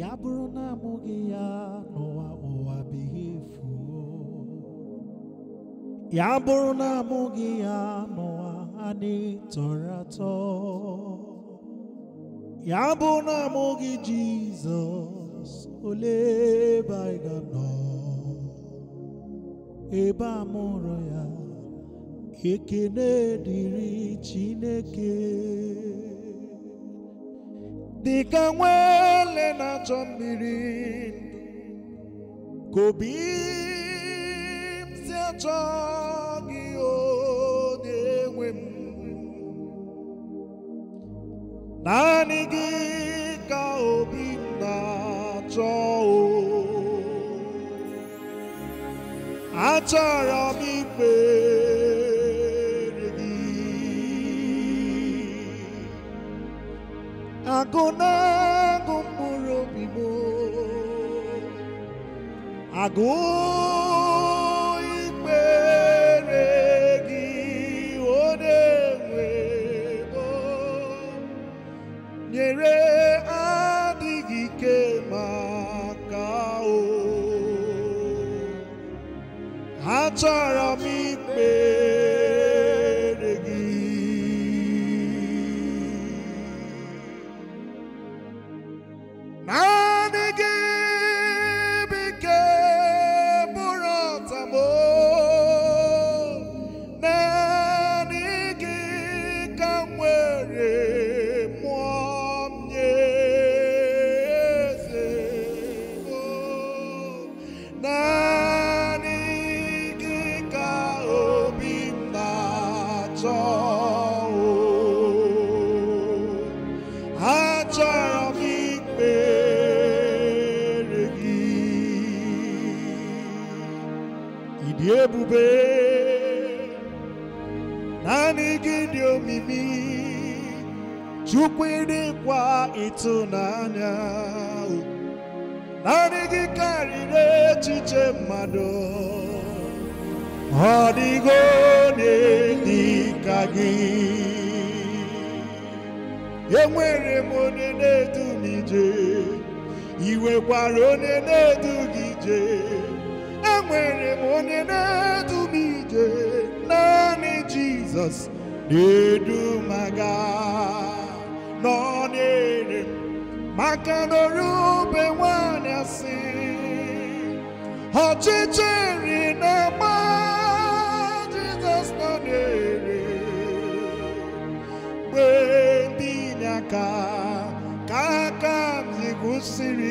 ya bụrụ na amụghị ya n'ụwa ụwa bighị efu ya bụrụ na amụghị ya n'ụwa adịghị tọrọ atọ ya bụrụ na amụghị Jizọs ole ebe anyị ga-anọ ebe a mụrụ ya ekene dịrị Chineke dịka nwa ele na-achọ mmiri ka obi m si achọ gị o na-enwe m naanị gị ka obi m na-achọ o achọrọ m ikpe agụnagụ mkpụrụ obi m imeregi ikpere gị ọ na-enwe nyere adịghị ike maka o ha dị ebube naanị gị dị omimi chukwu dịkwa ịtụnanya naanị gị karịrị echiche mmadụ ọ dịgo dị ka gị enwere m onye na-edu m ije onye na-edu gị ije onye na-edu m ije naanị jizọs na-edu m aga nọ n'ere maka n'orube nwanyị asị ọchịchịrị na-agba jizọs nọ n'ere mgbe ndị inye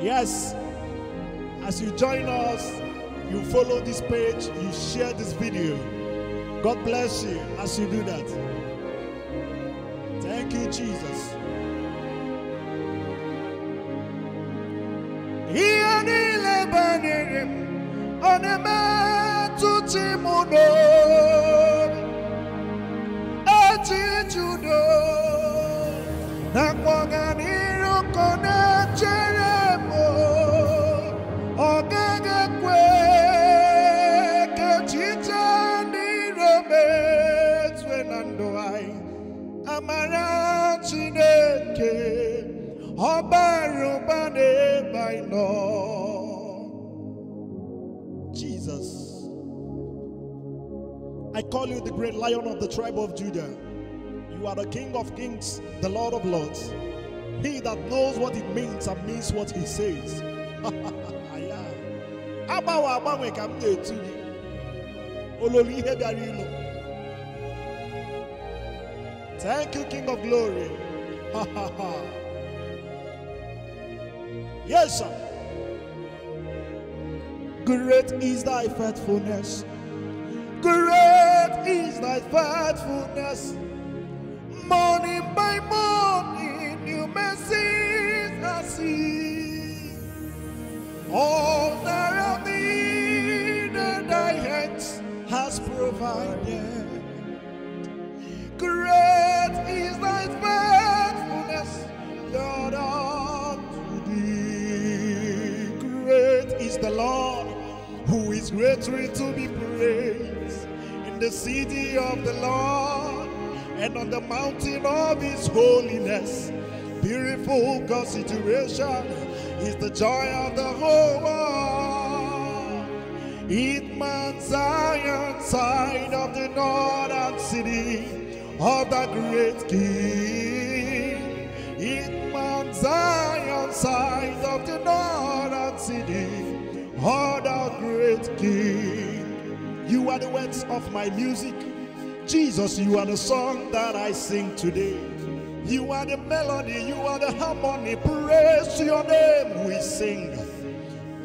yes as you join us you follow this page you share this video god bless you as you do that thank you jesus amara Chineke ụba Jesus I call you the great lion of the tribe of Judah you are the king of kings the lord of lords he that knows what it means and means what he says agbanwe agbanwe ka m na-etu gị ihe ilu Thank you, King of Glory. Yes, sir. Great is thy faithfulness. Great is thy faithfulness. greatly to be praised in the city of the Lord and on the mountain of his holiness. Beautiful consideration is the joy of the whole world. It Mount Zion, side of the northern city of the great king. It Mount Zion, side of the northern city Oh, thou great King, you are the words of my music. Jesus, you are the song that I sing today. You are the melody, you are the harmony. Praise your name, we sing.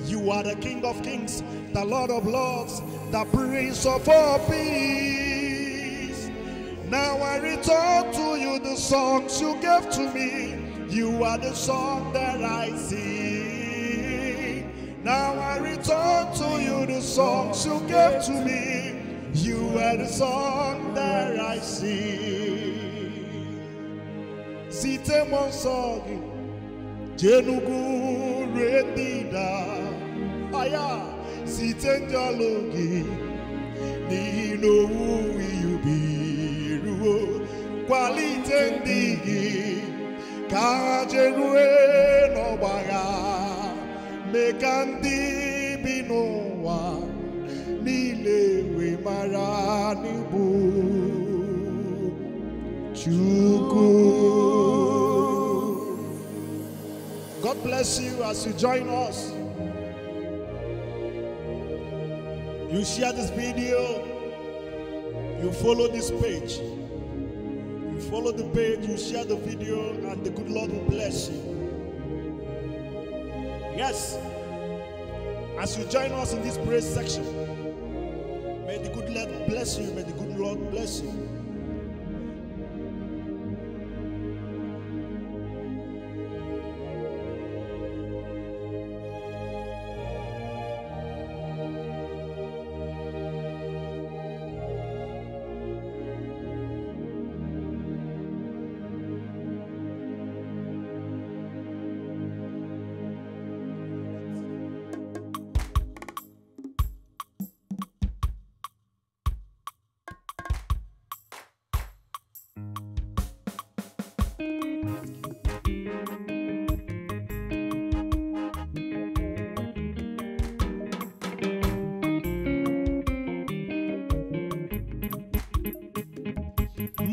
You are the King of kings, the Lord of lords, the Prince of all peace. Now I return to you the songs you gave to me. You are the song that I sing. Now turn to you the songs you gave to me. You are the song that I sing. Site monsogi, jenugu redida, aya, site njalogi, ni who you be, ruo, quality ndigi, kajerue no baga, bínú wa nílé we marani bu Chukwu. God bless you as you join us. You share this video, you follow this page. You follow the page, you share the video, and the good Lord will bless you. Yes. As you join us in this praise section, may the good Lord bless you. May the good Lord bless you.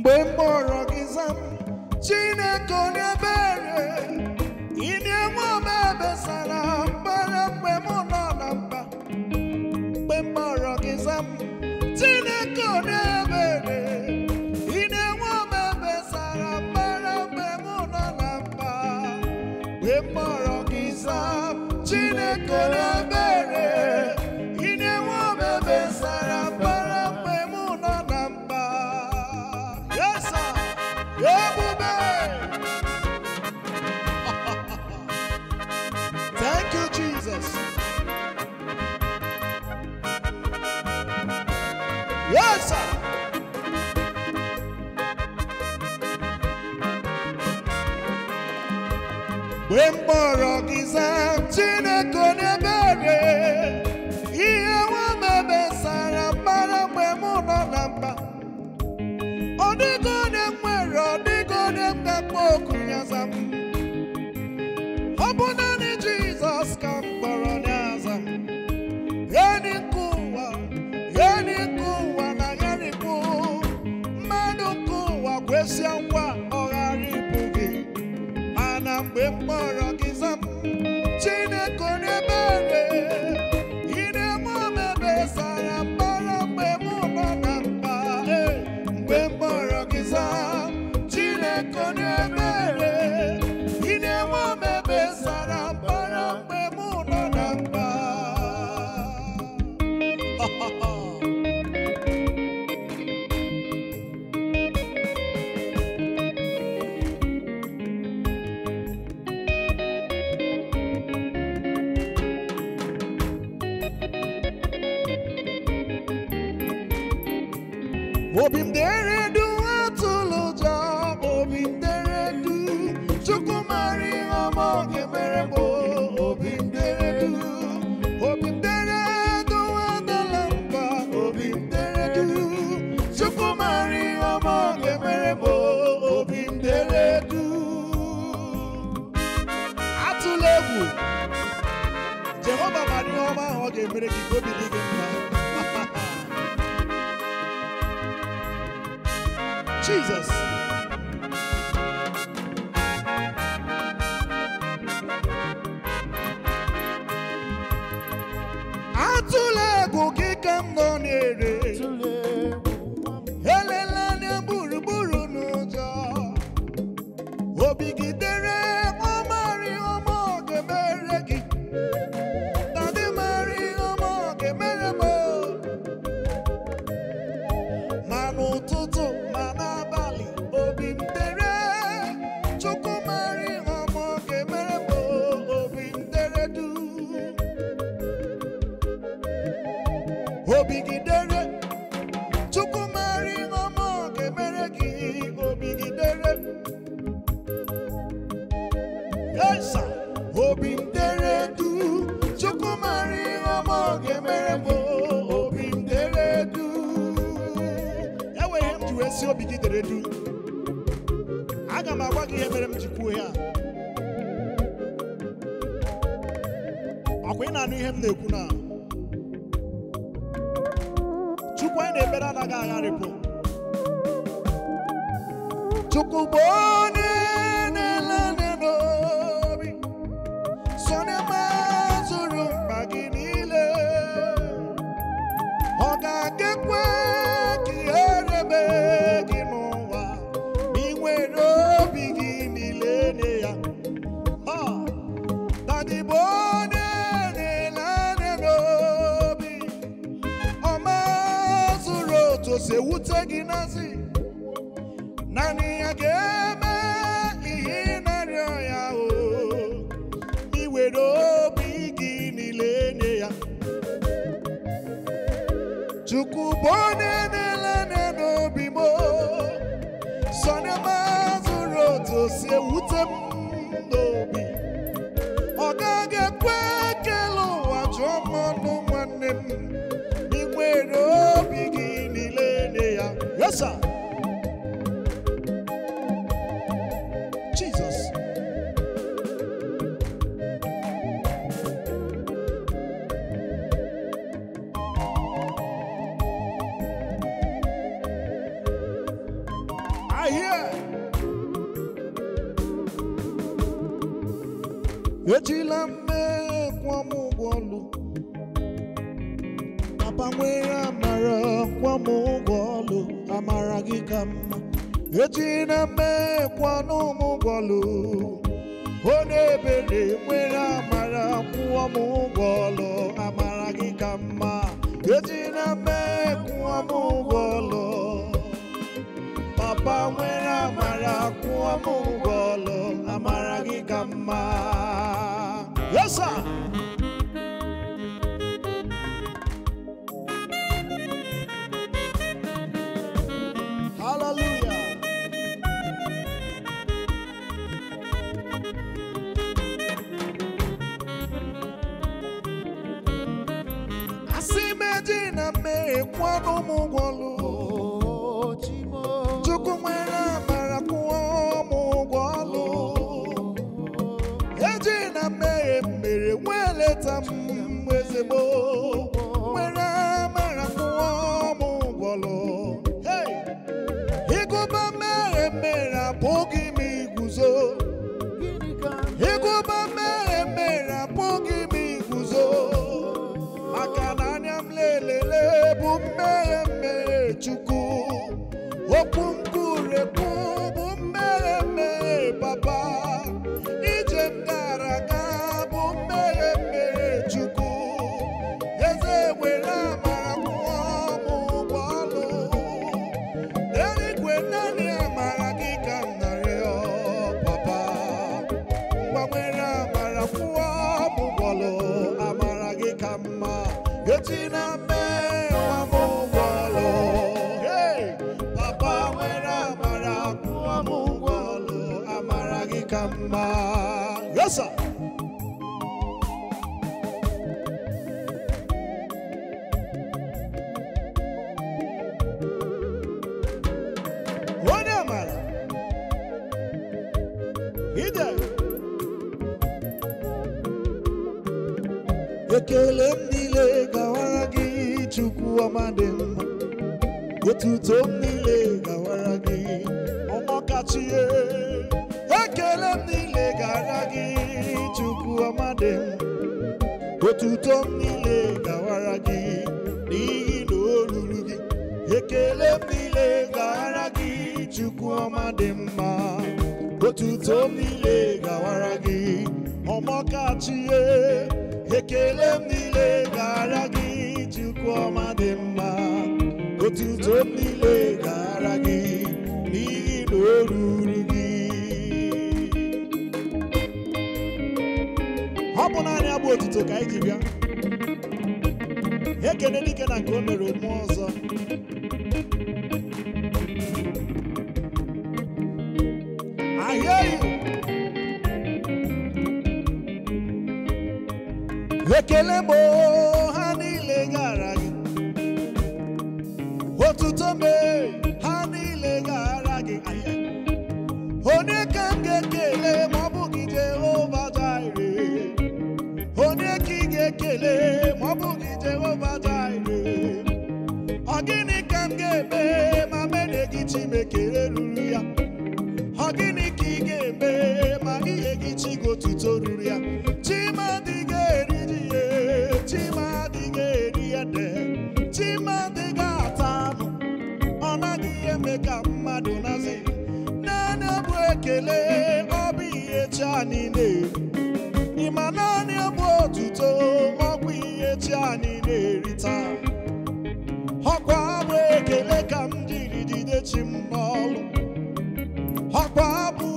mgbe mkpọrọ gị zam chineke onye ebere more of his emptiness. Vou him there Jesus. na-ekwu aka ụgwọ my ekele m niile gawara gị chukwu ọma dị mma otuto m niile gawara gị ọmọkachie ekele m niile gawara gị chukwu ọma dị mma otuto m niile gawara gị n'ihi na o ruru gị ọ bụ naanị abụ otuto ka anyị ji bịa ekele dike na nke o mere ụmụ ọzọ ekele bụ ha niile gara gị otuto mee a niile ịma naanị bụ otuto ọkwa ihe chi a niile erita ọkwa bụ ekele ka m jiri jide chi m n'ọlụ ọkwa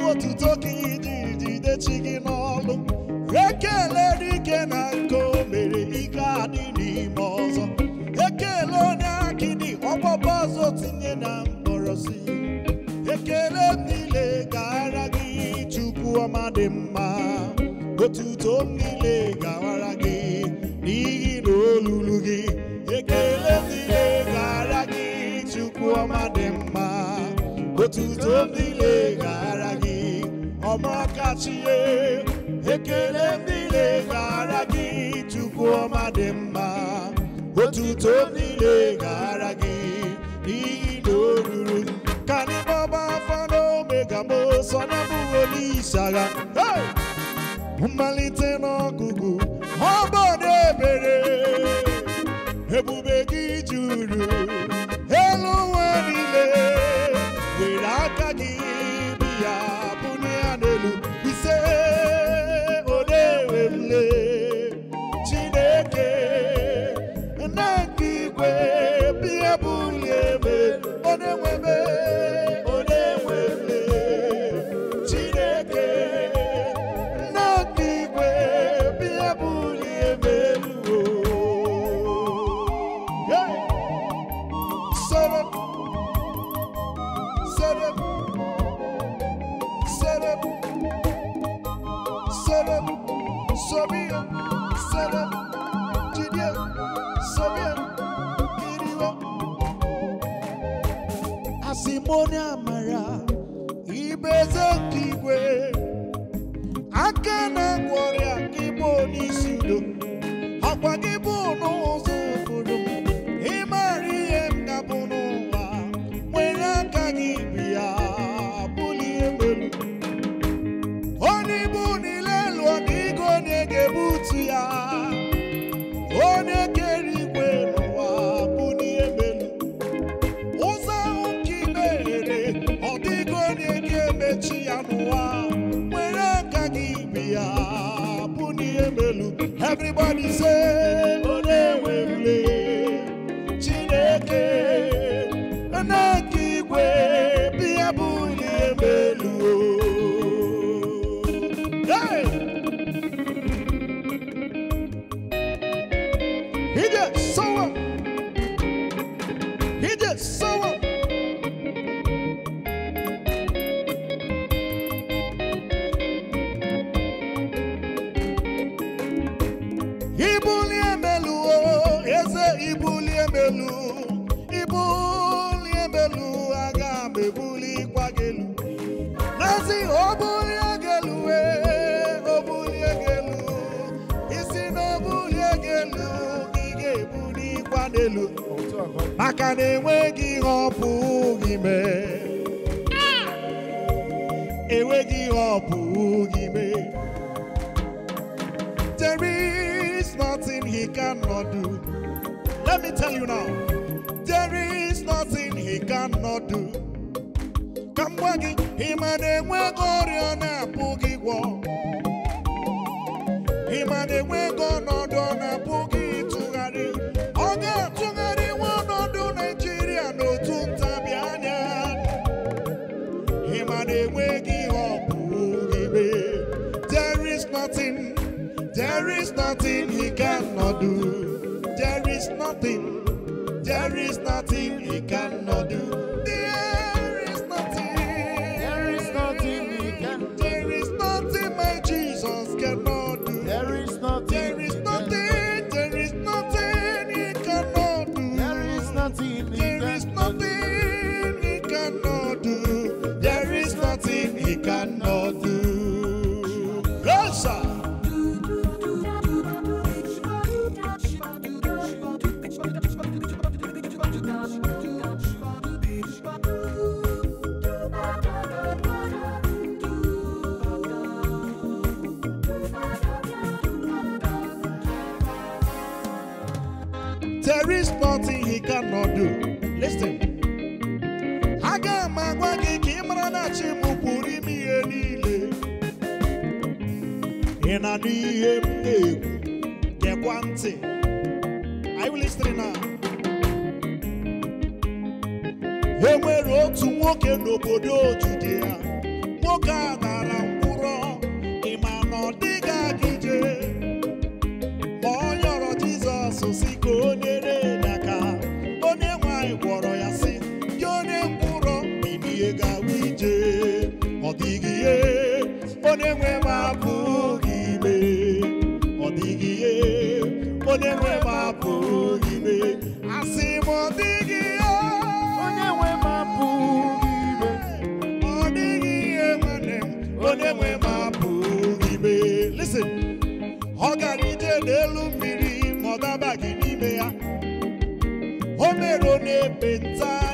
otuto ka ị jiri jide ọma dị mma otuto m niile gawara gị n'ihi ekele m niile gara gị chukwu ọma dị lega otuto m ekele m niile gara gị chukwu ọma dị mma otuto m sọdọ bụrụ olishara mmalite n'ọgụgụ ọ bụ na ebere ebube gị juru Everybody say. n'elu maka na enweghị enweghị there is nothing he cannot do let me tell you now there is nothing he cannot do ka m gwa gị ịma na enweghị ọrịa na-apụghị gwọ ịma na enweghị ọnọdụ ọ na-apụghị nothing he cannot do. There is nothing, there is nothing he cannot do. There is nothing, there is nothing he can There is nothing my Jesus cannot do. There is nothing, there is nothing, there is nothing he cannot do. There is nothing, there is nothing he cannot do. There is nothing he cannot n'ọdụ listen aga m gị ka ị mara na chi m pụrụ ime ihe niile ị na ihe m na-ekwu gekwa ntị are you listening now enwere otu nwoke n'obodo ojude ya nwoke a na onye nwe m apụghị ime ọ dịghị ihe onye nwe m apụghị ime asị m ọ dịghị ihe onye nwe m ime ọ dịghị ihe nwanne m onye nwe m apụghị ime listen ọ gara ije n'elu mmiri ma ọ gị n'ime ya o mere onye ebe taa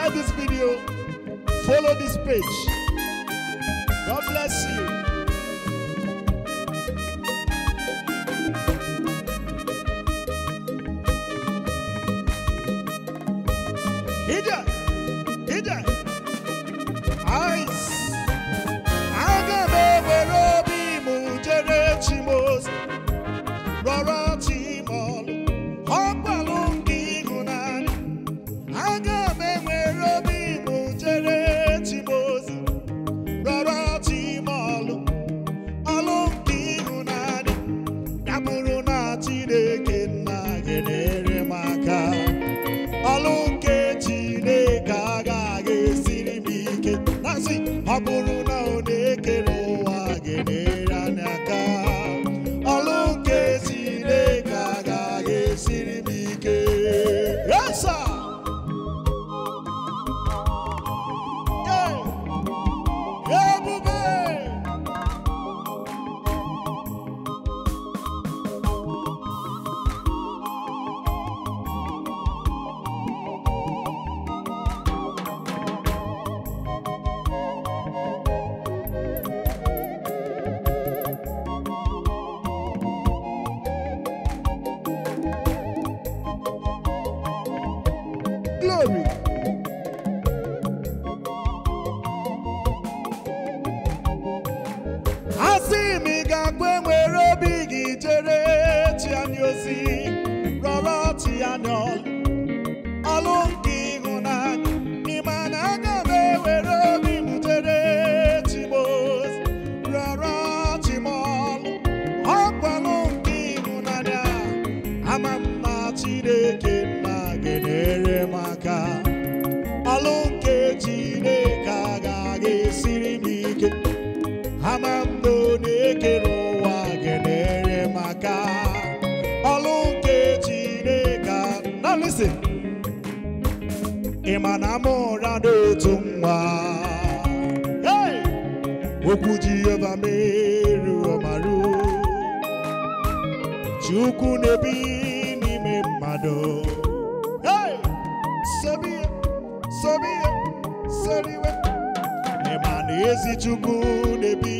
share this video, follow this page. God bless you. Ida, Ida. ịmanamụra dị otu Hey, okwu Jehova meru ọmaru chuku nebi ni me mado. Hey, sabi, sabi, ịma na ezi chuku nebi.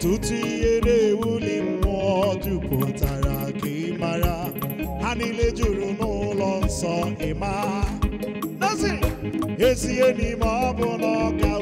ọ̀tútù eré wúlì mú ọdún kò tààrà kì í mara juru n'ụlọ nsọ ịma nazi ezi enyi ma ọ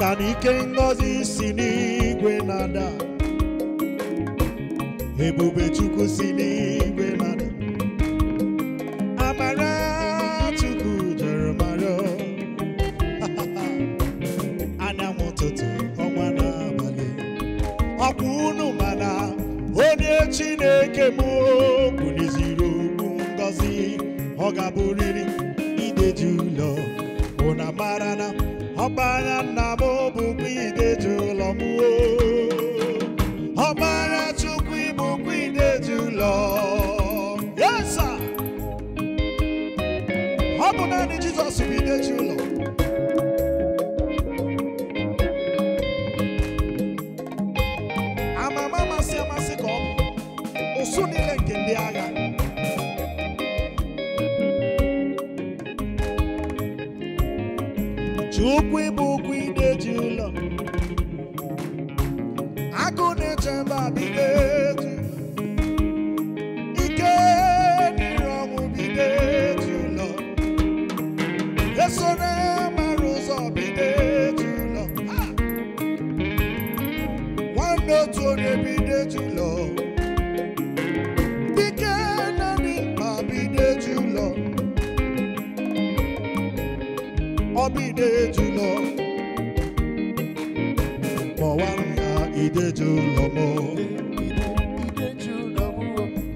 maka na ike ngọzi si n'igwe na-ada ebube chukwu si n'igwe na-ada amara chukwu jere mara anyanwụ ụtụtụ ọnwa n'abalị ọkwa unu mana onye chineke m kwuliziri okwu ngọzi ọ ga-abụrịrị ideji ụlọ ụna mara na ọkpara nna m bụkwa ideji ụlọ m ọkpara chukwu ịbụkwa ideji ụlọ yesa ọ bụ naanị jùlọ ya ide jùlọ m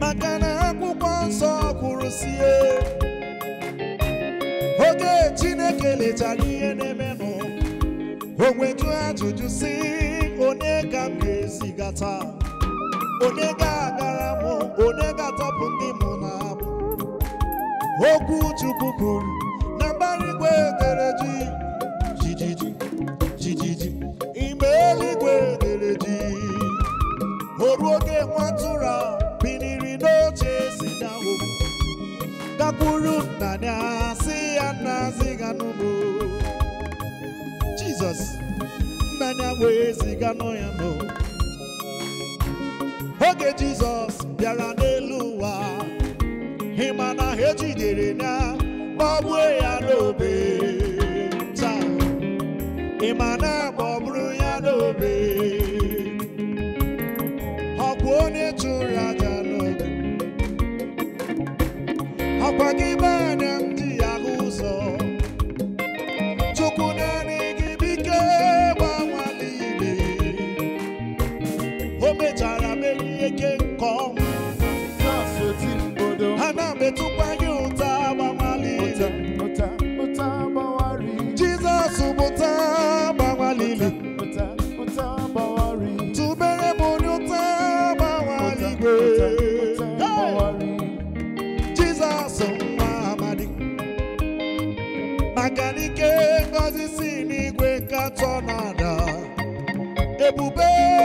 maka na akwụkwọ nsọ kwuru sie oge Chineke lechara ihe na-emenụ o nweju ajụjụ si onye ka m ga-ezigata onye ga-agara mụ onye ga-atọpụ ndị mụ na okwu Chukwu kwuru Jesus, biniri n'oche si dawo gakwuru nna ya si ya ziga nọ nọ oge jizọs bịara n'elu ụwa ịma na ha ya tún rajà kí bá.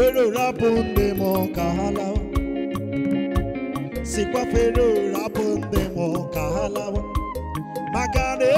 fero rapunde mo kahala sikwa fero rapunde mo kahala magane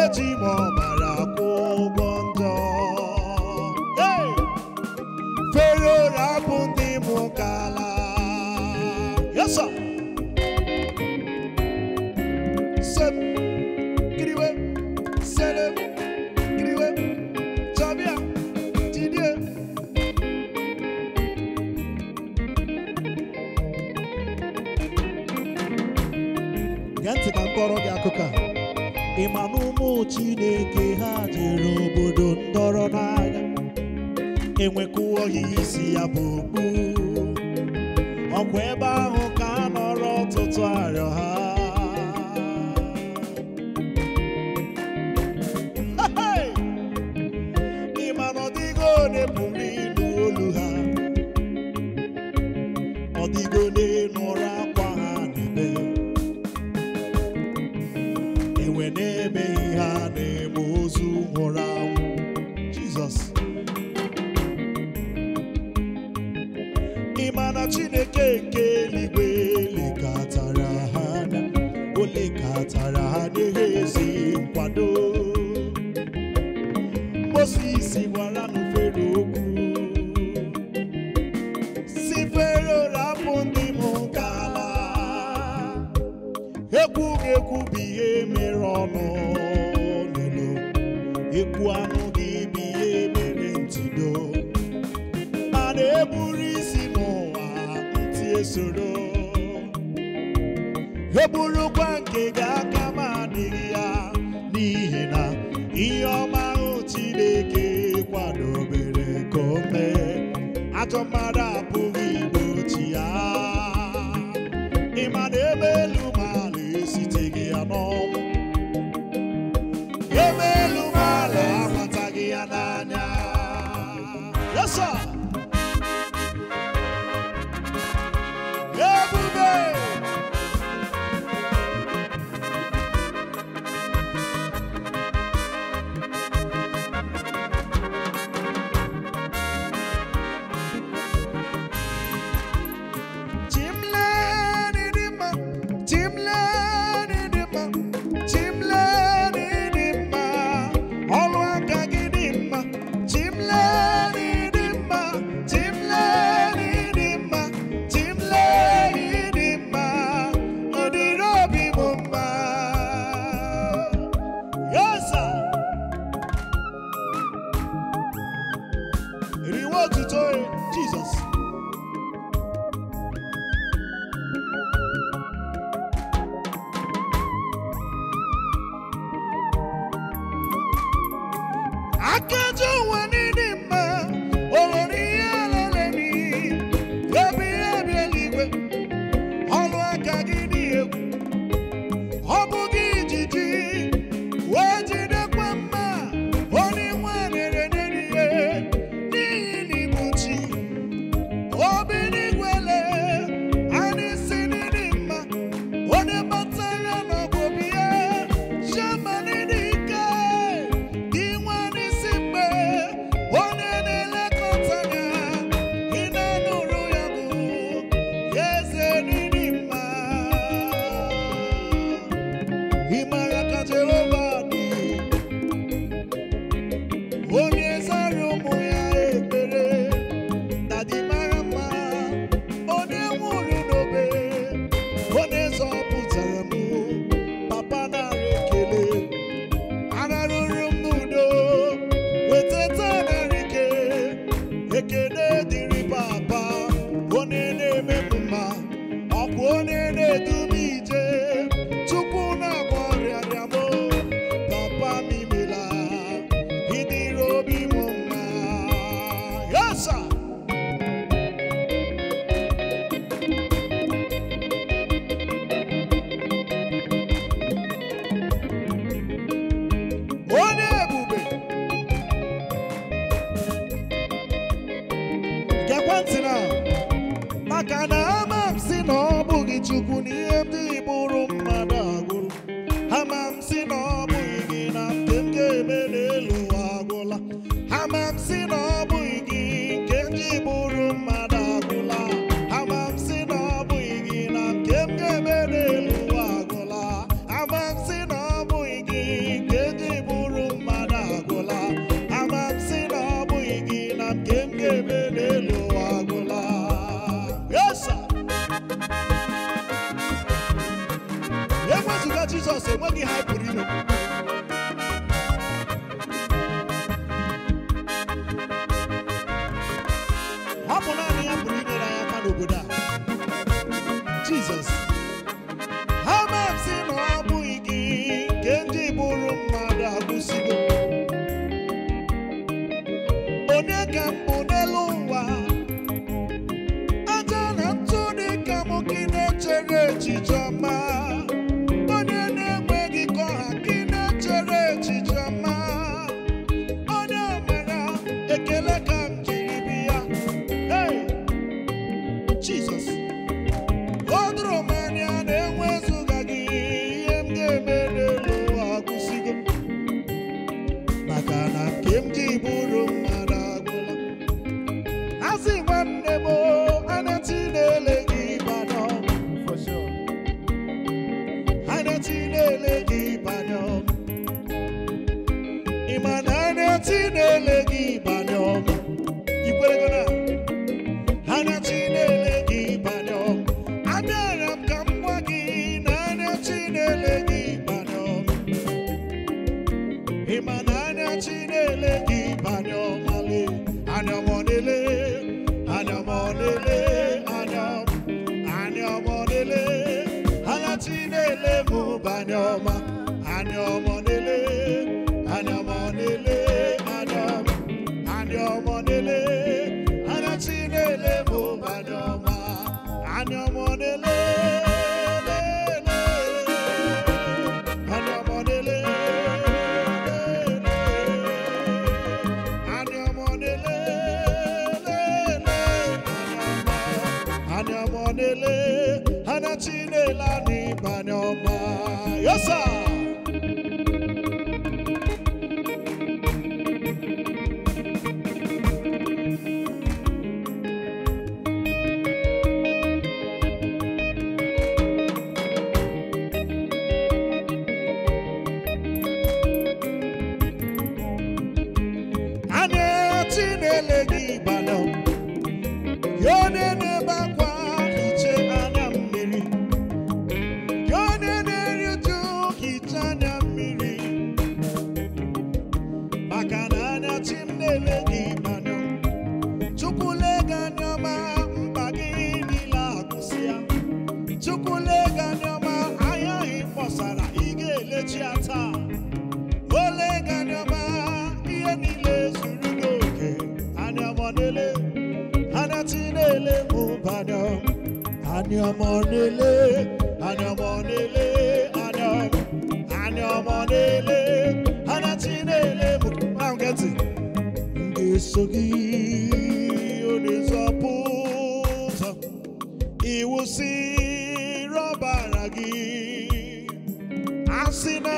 money, money. àní ọmọ nílé àní ọmọ nílé àní ọmọ àní ọmọ nílé àní ọtí nílé mọ̀kàn kẹ́tì. Ngesogi onizọpụzọ iwusi rọbara gị asị na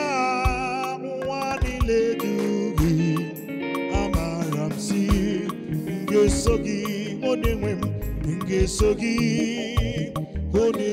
nwa niile dị gị amara m si ngeso gị onye nwe m ngeso gị.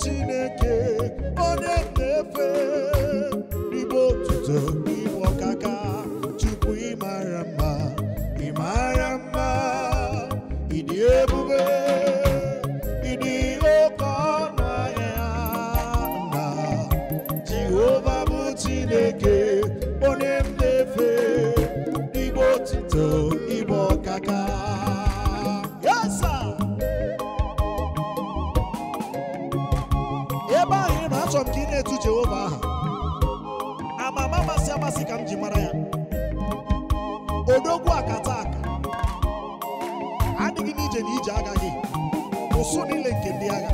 chineke onye na-efe igbe otuto ji mara ya odogwu akata aka adịghị n'ije na ije agaghị gị ụsụ niile nke ndị agha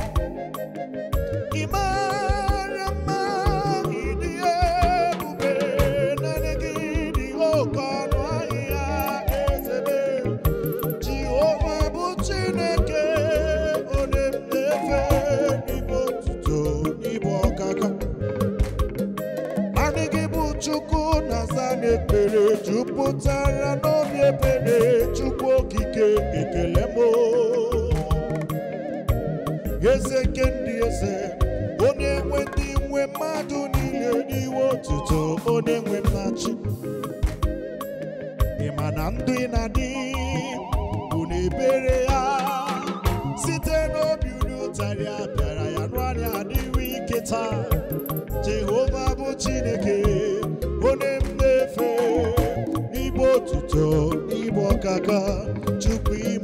ebere chukwu okike ekele m eze nke ndị eze onye enwe ndị nwe mmadụ niile n'iwe otuto onye nwe mmachi ịma ma na ndụ ị na-adị bụ na ebere ya site n'obi unu ụtarị a bịara ya nụ anya ike taa Jehova bụ Chineke to kaka chukwu chibụ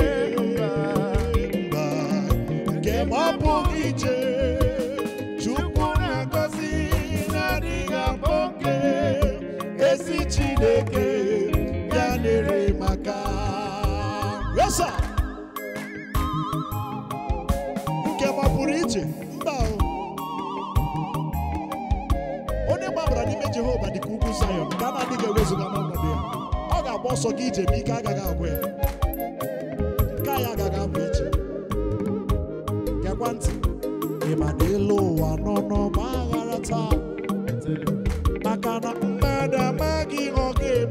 asaa nke gbapụrụ iche mba onye gbabara n'ime Jehova dịka ugwu Zayọn nke a na-adịghị ewezuga n'ọnọdụ ya ọ ga-agba ọsọ gị ije ma ike agaghị agwụ ya nke anyị agaghị abụ ije gekwa ntị ị ma na ịlụ ụwa nọ nọ n'ọgba ghara taa maka na mmadụ amaghị ọ eme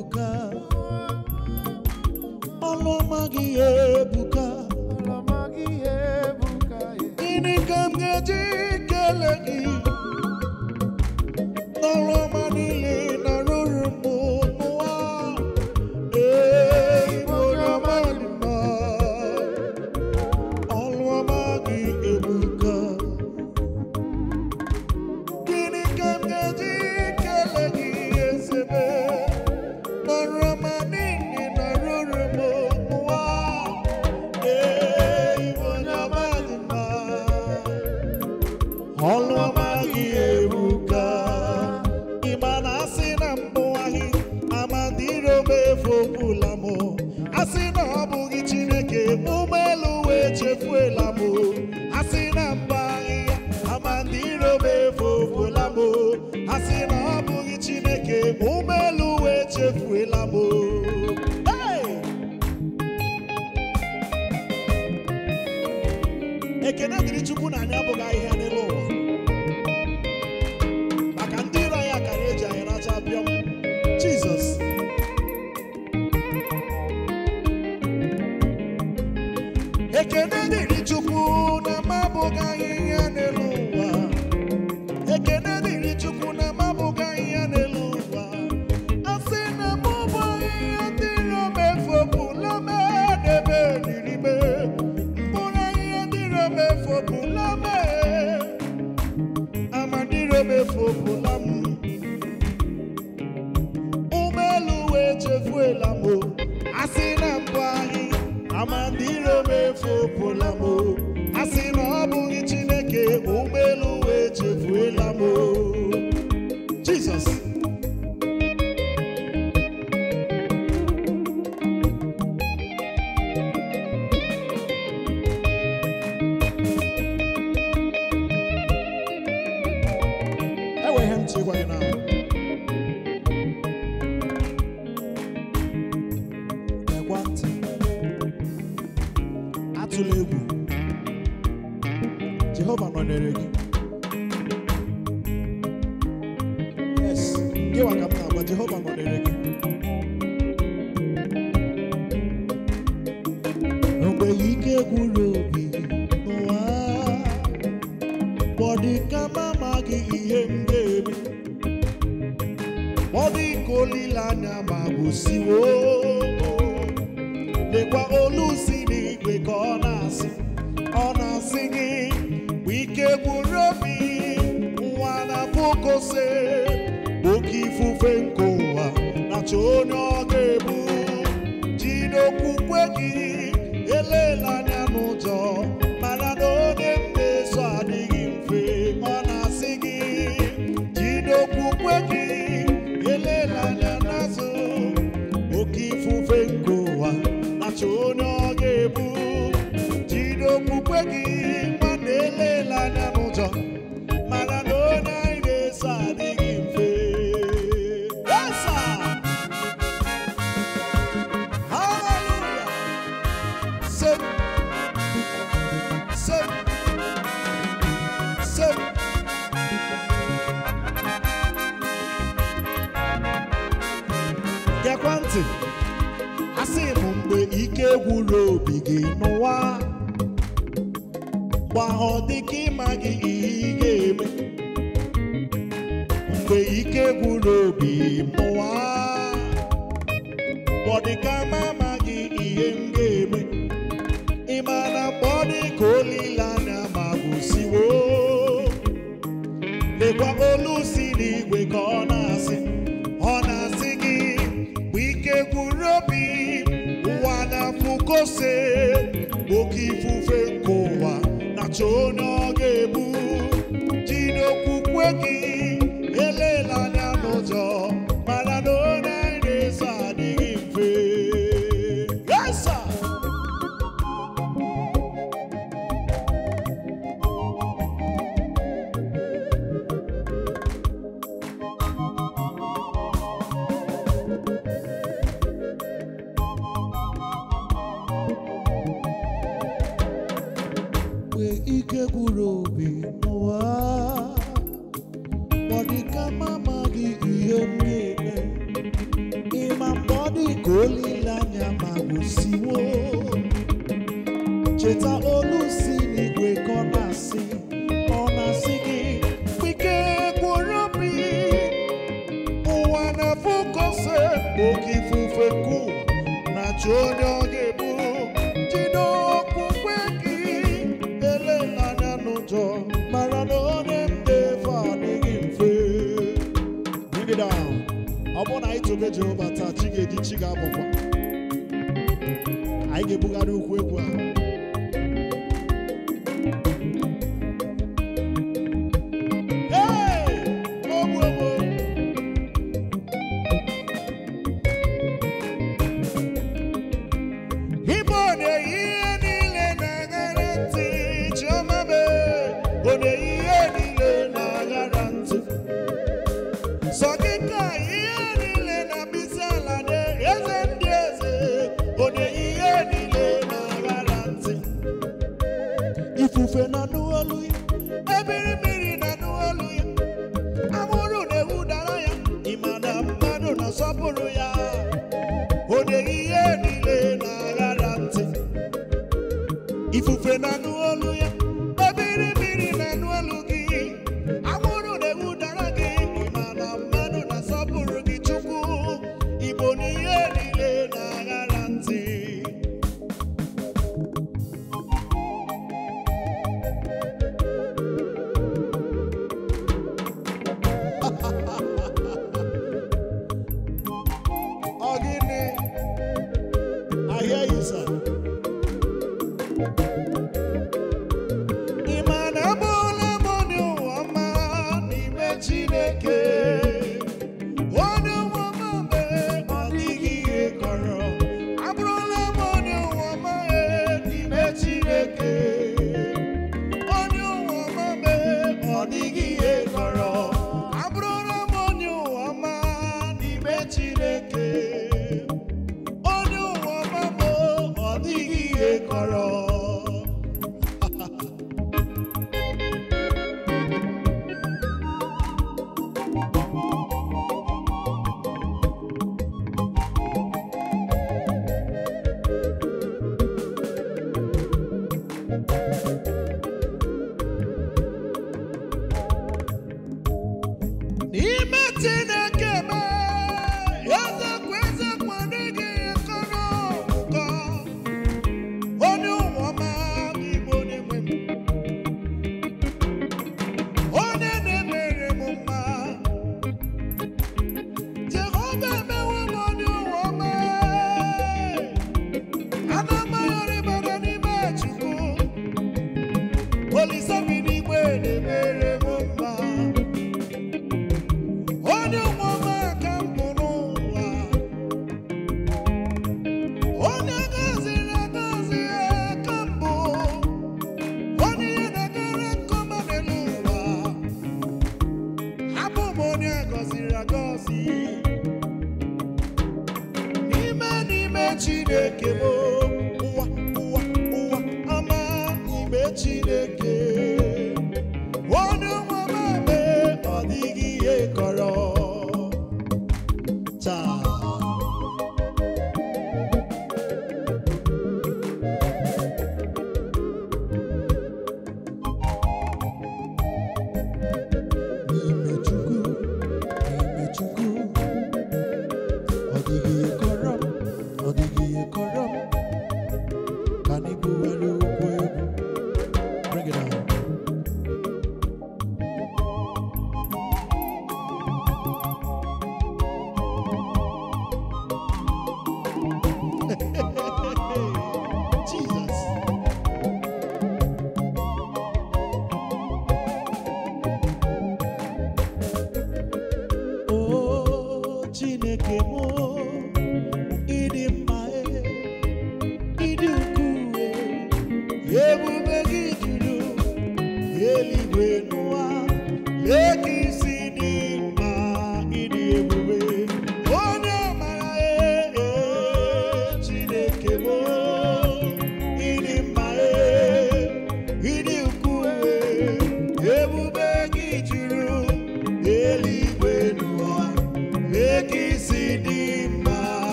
ebuka ọlụọma gị ebuka gịnị ka m ga ike ike gwụrụ obi mụwa know.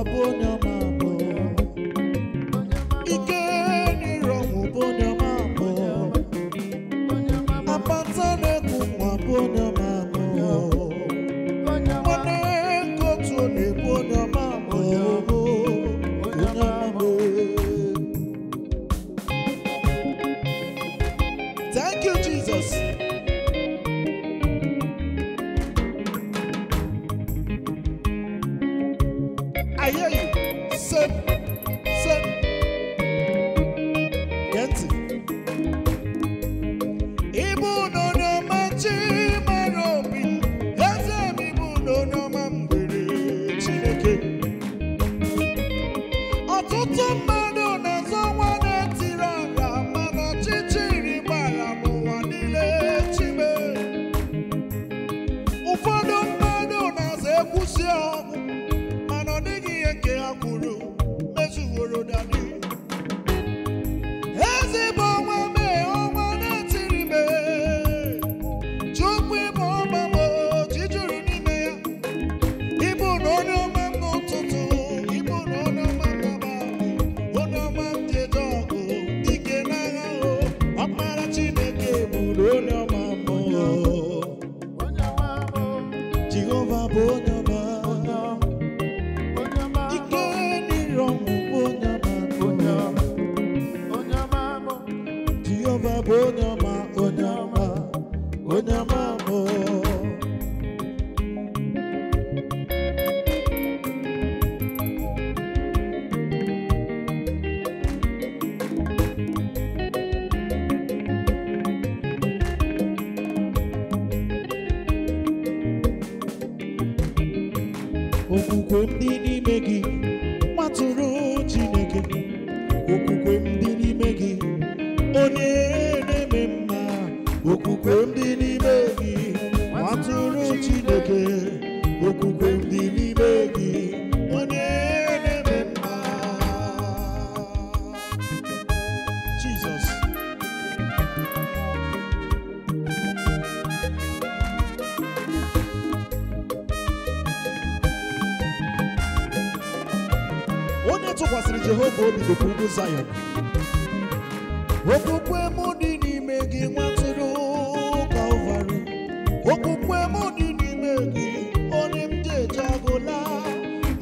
abona okwukwe m dị n'ime gị matụrụ Chineke obi gokwugo Zion okwukwe m dị n'ime gị nwatụrụ Kalvarị okwukwe m dị n'ime gị onye m ji eje agụla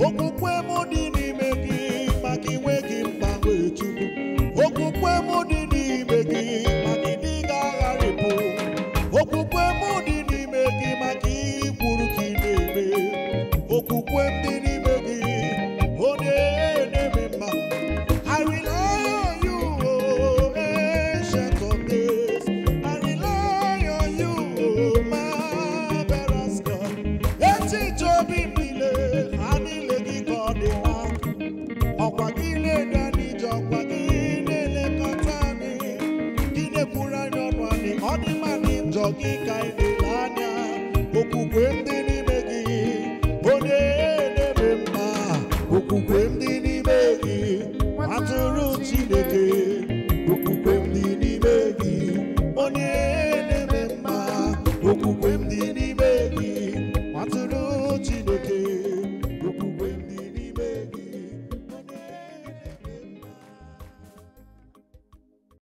okwukwe m dị n'ime gị maka inwe gị mgbanwe chukwu okwukwe m dị n'ime gị maka ịdị ga-agharịpụ okwukwe m